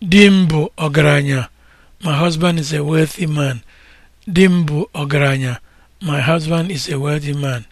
Di m bụ ọgaranya. My husband is a ọgaranya. My husband is a wealthy man.